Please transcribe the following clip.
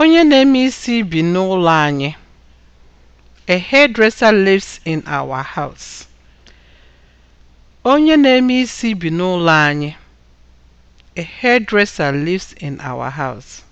Onye na-eme isi bi n'ụlọ anyị. A hairdresser lives in our house. Onye na-eme isi bi n'ụlọ anyị. A hairdresser lives in our house.